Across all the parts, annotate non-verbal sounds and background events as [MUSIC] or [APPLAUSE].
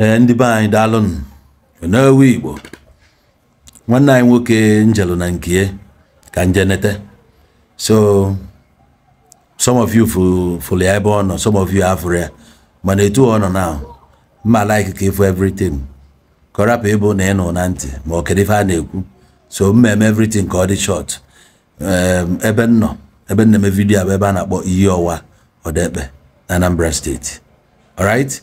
ee eh, ndị be anyị daalụnụ n'ewu igbo nwanne anyị nwoke njelu na nkie ka njenete so some of you fụrụ ya ebe ọ nọ some of you afụrụ ya mana etu ọ nọ na mma like ka ịfụ everything ka ịbụ na ị nụ na ntị ma ọ kedu ife a na-ekwu so mmeme everything ka ọ dị short ebe nnọ nọ ebe nna eme vidio bụ ebe a na-akpọ iyi ọwa ọdekpe na Anambra steeti alright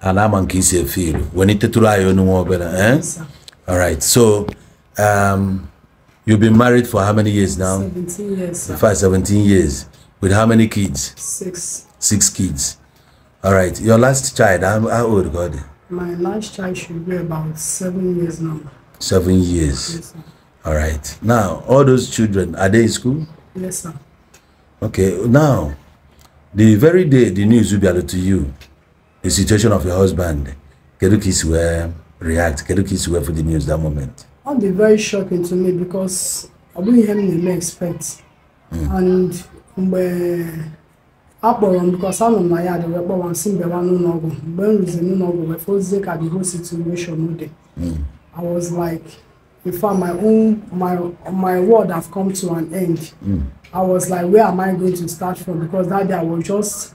ana ama nke isi efe ilu wee itetụrụ anyị eh? all right so um, you've been married for how many years now 17 years in 17 years with how many kids six six kids all right your last child how, how old god my last child should be about seven years now seven years yes, sir. all right now all those children are they in school yes sir okay now the very day the news will be added to you the situation of your husband kedu ka isi wee react kedu ka isi wee for the news that moment ọ dị very shocking to me because ọ bụghị ihe m na-eme expect hmm. and mgbe akpọrọ m because anọ m na ya dị wee kpọwa nsị mbịawa n'ụlọ ọgwụ mgbe m ruzi n'ụlọ ọgwụ wee fozie ka the whole situation dị hmm. i was like in fact my own my my world have come to an end mm. i was like where am i going to start from because that day i was just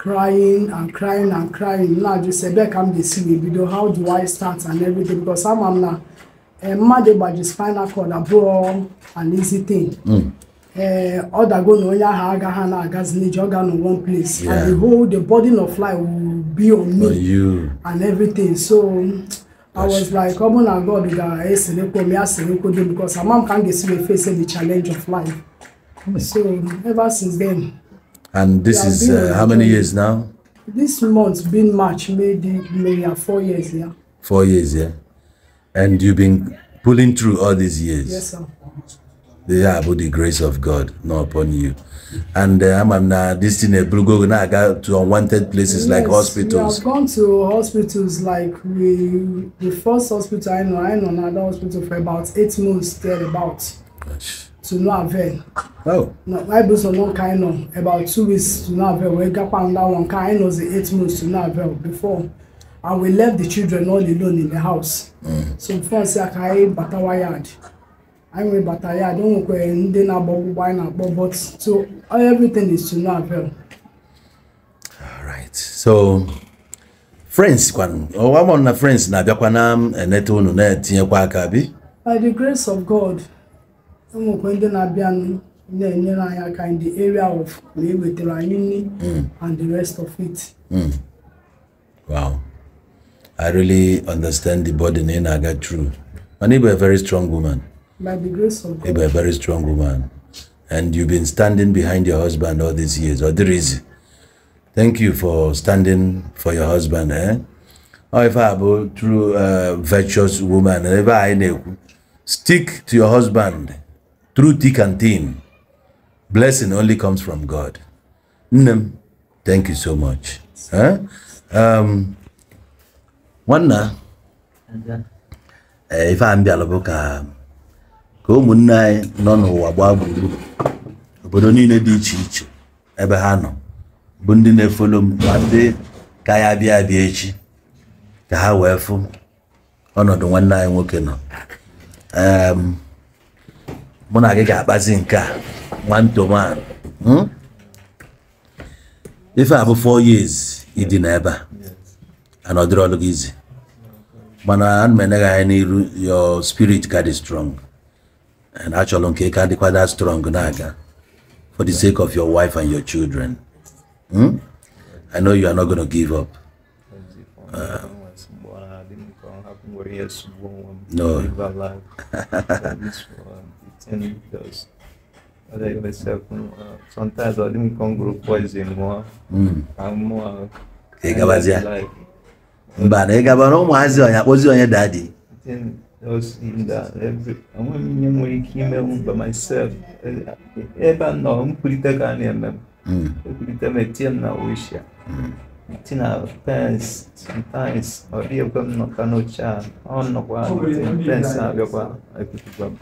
crying and crying and crying now just say back i'm the singing video how do i start and everything because i'm i'm now uh, eh, mad about the spinal cord abroad and easy thing mm. uh, ọ dago na onye ahụ agaghị na agazi n'iji ọ na one place yeah. and the whole the burden of life will be on me and everything so I was like, ọ bụ na God ga-eselekwo m ya selekwo dị because ama m ka m ga-esi wee face the challenge of life. Hmm. So ever since then, And this is uh, how many years now? This month, been March, May, May, four years, yeah. Four years, yeah. And you've been pulling through all these years. Yes, sir. They are the grace of God, not upon you. And uh, I'm now this thing uh, Brugo now I got to unwanted places yes, like hospitals. I've gone to hospitals like we the first hospital I know I know another hospital for about eight months there about. Gosh. to no avail. Oh. Na I do some one kind of about two weeks to no avail. We got found that one kind of the eight months to no avail before. And we left the children all alone in the house. Mm. So before I say I can batawa yard. I mean bataya, I don't know ndị na-agba ọgbụgba anyị na-akpọ but so everything is to no avail. Alright, so friends kwanụ, ọwa mụ na friends na-abịakwa na-enete unu na-etinyekwa aka bi? By the grace of God. ụmụkwe ndị abianu in the area of ma with the raini and the rest of it. Mm. Wow. I really understand the burden in na na-aga through. And you a very strong woman. By the grace of God. You a very strong woman. And you've been standing behind your husband all these years. Or there is. Thank you for standing for your husband. Eh? Or if I go through a uh, virtuous woman, stick to your husband. through thick and thin blessing only comes from god nne thank you so much eh? um, nwanna eh, ife a mbịala bụ ka ka ụmụnne anyị nọ n'ụwa gbaa gburugburu obodo niile dị iche iche ebe ha nọ bụ ndị na-efolo m ma ndị ka ya bịa abịa echi ka ha wee fụ ọnọdụ nwanne anyị nwoke nọ um, mụ na gị one to one hmm? If a four years ịdị n'ebe a and I gị izi mana ana m enye gị anya your spirit got dị strong and achọrọ nke be quite that strong na for the sake of your wife and your children hmm? I know you are not going to give up uh, no [LAUGHS] [LAUGHS] Uh, hmm. because like myself, uh, sometimes I didn't come group wise anymore. Mm. I'm more. Egabazia. Like, Mbana egabana ụmụazị onye akpọzi onye dadi. Enweghị m daddy, nwere ike ime m by myself. Ebe eh, eh, hmm. a nọ nkwurịta ka a na-eme m. Ekwurịta m etinye m na wishia. Hmm. Tinye na pens sometimes ọ dịghị ekwe m nọta n'oche a ọ nọkwa pens a bịakwa ekwurịta m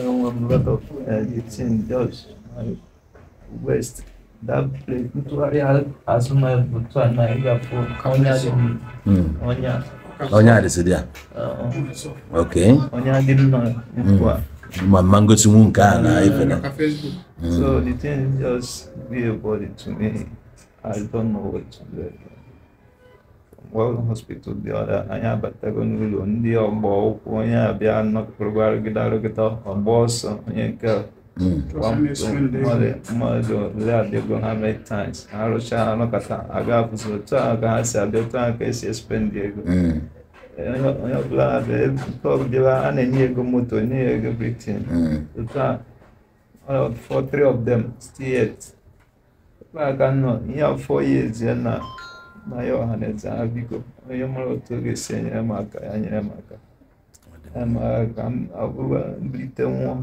um, um, lot of uh, it's in West. That place, nítorí asúnmọ́ ẹ̀bùtú àná ìgbà fún ọ̀nyá dé mi. ọ̀nyá. ọ̀nyá dé sí díà. ok. ọ̀nyá dé nínú Ma mango ti mu nke na ife na. So the thing just be a body to me. I don't know what to do. World Hospital dịọra anyị abatago n'ụlọ ndị ọgba ụkwụ onye abịa nọkọrọba arụgịdarụgịda ọgba ọsọ onye nke mmadụ ole adịgo ha mee times ha rụchaa aga otu a ka ha si abịa otu ego onye ọbụla ọbụla a na-enye ego moto enye ya ego britin otu a for three of them yet aka afọ ya na na ya ọha mm. na biko onye mara otu oge ga-esi enyere m aka ya nyere m aka ka m mbilite nwụọ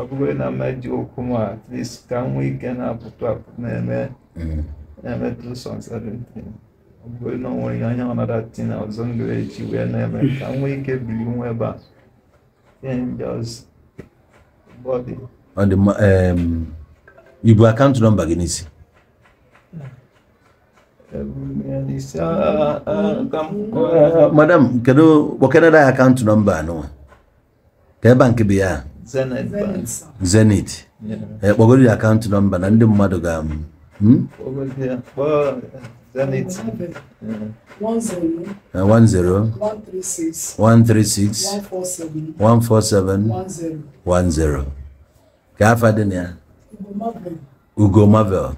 ọ bụghị na mmeji okwu m at least ka m nwee ike na-apụtụ apụ na-eme na-emetụ sọ nsarịntị ọ bụghị na ọ nwere ihe anya ọnada tina ọzọ m eji wee na-eme ka m nwee ike biri nwa ebe a ọ dị mma ibu akaụntụ nọmba gị n'isi madam kedu kpọkedada akaụntụ nọmba anụnwa ka bank bụ ya Zenith. kpọgoro ya akaụntụ nọmba na ndị mmadụ ga hmm? Zenith. One zero. Uh, one Ugo Marvel.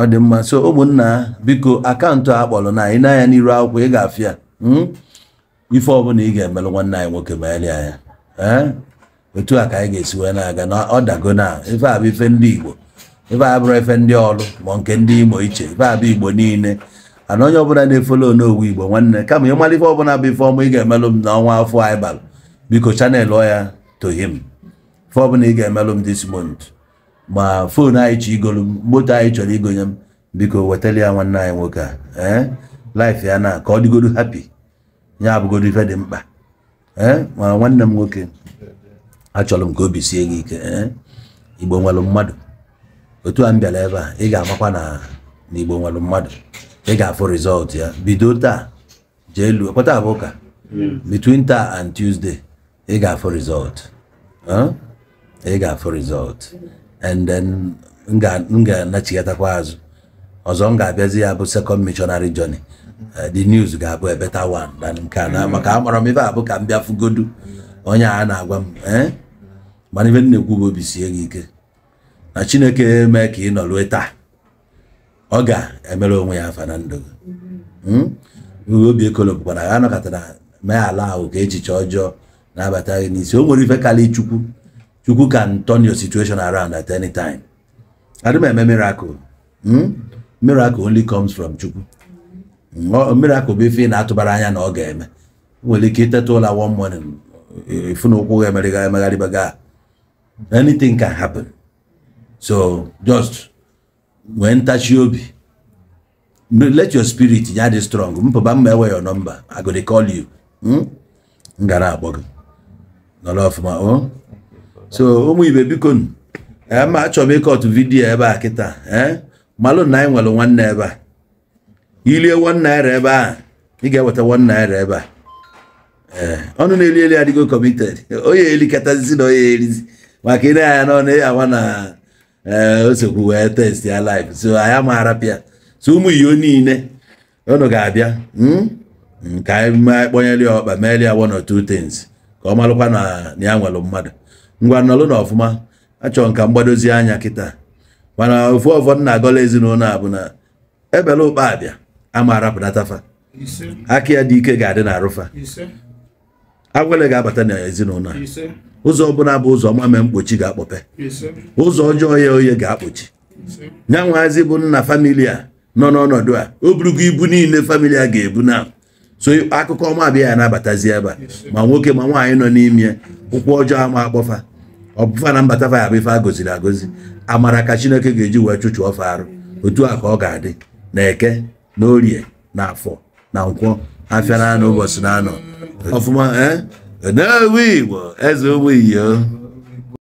ọ dị mma so ụmụnna biko akaụntụ a kpọrọ na anyị n'anya n'iru akwụkwọ ị ga-afịa hmm? ife ọbụla ị ga-emelụ nwanne anyị nwoke ma anyị anya eh? otu a ka anyị ga-esi wee na-aga na ọ dago na ife a bụ ife ndị Igbo ife a bụrụ efe ndị ọrụ ma nke ndị Imo iche ife a bụ Igbo niile ana onye ọbụla na-efolo n'owu Igbo nwanne kama ịmara ife ọbụla bụ ife ọma ị ga-emelụ m n'ọnwa afọ anyị bara biko chanel ọ ya tohim ife ọbụla ị ga-emelụ m this month ma foonu anyị chọ igolu moto anyị chọrọ igonye m biko wetara ya nwanne anyị nwoke a ee eh? laif ya na ka ọ dịgodu hapi ya abụgodu ife dị mkpa ee eh? ma nwanne m nwoke achọrọ m ka obi sie gị ike ee eh? igbo nwere mmadụ otu a m bịara ebe a ị ga-amakwa na igbo nwere mmadụ ị ga-afụ rịzọlt ya bido taa jee luo abụ ụka between taa and tuzde ị ga-afụ rịzọlt ị ga-afụ rịzọlt. and then m ga-anachigatakwa azụ ọzọ m ga-abịazi ya bụ second missionary journey eh, the news ga-abụ ebe better one than nke a mm. maka amara m ibe abụ ka m bịa fugodu onye a na-agwa m eh, mana ibe nna ekwu bụ obi sie gị ike na chineke mee ka ị nọrue taa ọ ga-emere onwe ya afa na ndụ gị mm-hmm. hmm? obi ekolo bụkwara ha anọkọtara mee ala ahụ ka echiche ọjọọ na gị n'isi o nwere ife karịa chukwu Chukwu can turn your situation around at any time. I don't miracle. Hmm? Miracle only comes from Chukwu. Hmm? Miracle bụ ife na atụbara anya na ọ ga-eme. Nwere ike iteta ụla one morning ifu na ụkwụ ga-emeriga Anything can happen. So just nwee ntachi obi. Let your spirit ya dị strong. Mpụba mma enwe your number. I go dey call you. M hmm? gara akpọ gị. Nọrọ ọfụma. Oh. so ụmụ ibe biko eh, ma achọrọ ịkọtụ vidio ebe a kịta eh? malụ na anyị nwere nwanne ebe a ilie one naira ebe a ị ga-eweta one naira ebe a eh, ọnụ na-eli eli adịgo kọmited [LAUGHS] onye elikatazizi na onye erizi maka ị na-anya n'ọnụ ya awa na osekwu wee test ya live so anyị amaghara pịa so ụmụ iyo niile unu ga-abịa hmm? ka anyị kpọnyeli ọkpa meeli ya one or two things ka ọ malụkwa na ya nwere mmadụ ngwa nọlụ na ọfụma achọrọ nka mgbadozi anya kịta mana ofu ọfọdụ na-agọla ezinụlọ a bụ na ebele ụkpa abịa ama arapụnatafa aka ya dị ike ga-adị na arụfa agwele ga-abata n'ezinụlọ a ụzọ ọbụla bụ ụzọ mame mkpochi ga-akpọpe ụzọ ọjọọ ya oye ga-akpọchi nya nwaazị bụ nna famili a nọ n'ọnọdụ a o burugo ibu niile famili a ga-ebu na so akụkọ ọma abịa ya na-abatazi ebe a ma nwoke ma nwaanyị nọ n'ime ụkwụ ọjọọ ama akpọfa ọbụfa na mbata bụ ife a agozi amara ka chineke ga-eji wee chụchụ ọfa arụ otu a ka ọ ga-adị na eke na orie na afọ na nkwọ afịa na anụ ụbọchị na anọ ọfụma eh? eze ụmụ iyo